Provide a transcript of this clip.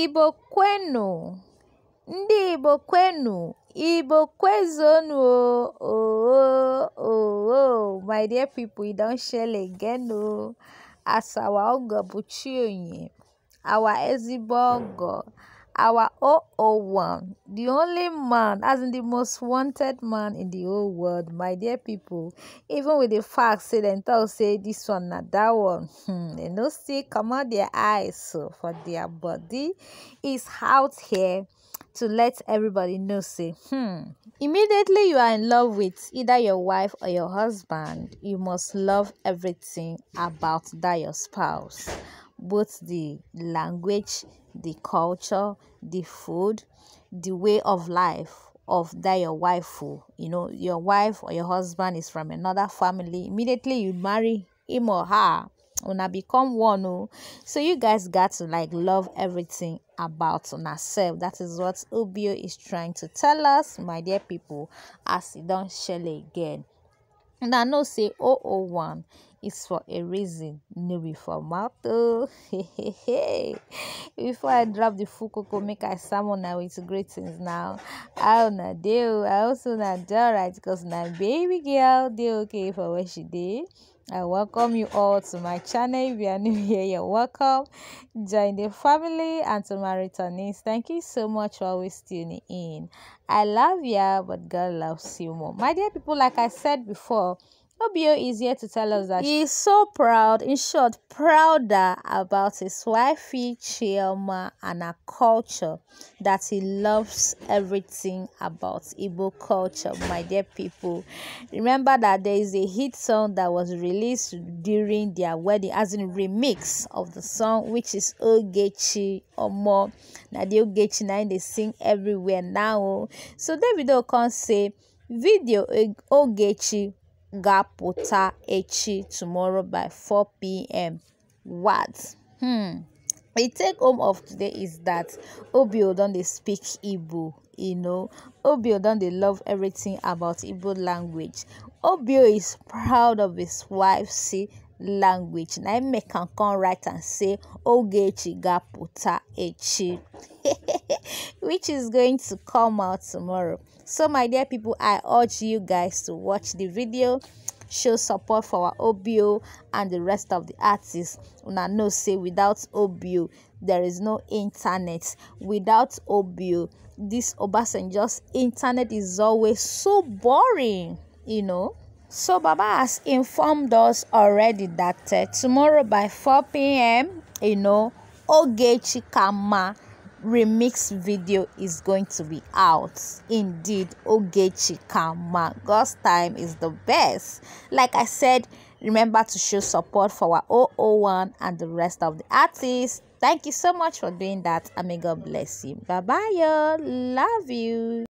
Igbo kwenu! Ndị Igbo kwenu! Igbo Ooo ooo! My dear people, e don shell again ogo Buchi Oye, our ezigbo ogo our 001 the only man as in the most wanted man in the whole world my dear people even with the fact say dem talk say this one na that one hmm dem no come out their eyes for their body is out here to let everybody know say hmm immediately you are in love with either your wife or your husband you must love everything about that your spouse both the language, the culture, the food, the way of life of that your wife who oh. you know your wife or your husband is from another family immediately you marry him or her una become one. Oh. so you guys got to like love everything about ourselves that is what obio is trying to tell us my dear people as e don shele again I know say 001 it's for a reason, no be for mouth. Oh. Before I drop the full cocoa, make I summon now with greetings now. I na deal. Oh? I also na do right because my baby girl they okay for what she did. I welcome you all to my channel. If you are new here, you're welcome. Join the family and to my returnees. Thank you so much for always tuning in. I love you, but God loves you more. My dear people, like I said before, Obio is here to tell us that he is so proud, in short, prouder about his wifey Chioma and her culture, that he loves everything about Igbo culture, my dear people. Remember that there is a hit song that was released during their wedding, as in remix of the song, which is Ogechi Omo. Now the Ogechi now they sing everywhere now. So video can say, video Ogechi Gapota Echi tomorrow by 4 p.m. What? Hmm. The take home of today is that Obio don't they speak Igbo, you know. Obio don't they love everything about Igbo language. Obio is proud of his wife, see, language na im make come write and say ogechi gaputa echi which is going to come out tomorrow so my dear people i urge you guys to watch the video show support for our obio and the rest of the artists una know say without obio there is no internet without obio this Obasanjo's just internet is always so boring you know so Baba has informed us already that uh, tomorrow by 4 p.m., you know, Ogechi Kama remix video is going to be out. Indeed, Ogechi Kama, God's time is the best. Like I said, remember to show support for our 001 and the rest of the artists. Thank you so much for doing that, and may God bless you. Bye bye, y'all. Love you.